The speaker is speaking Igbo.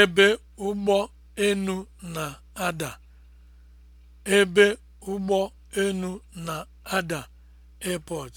ebe ụgbọ enu na-ada ebe ụgbọ enu na-ada (airport)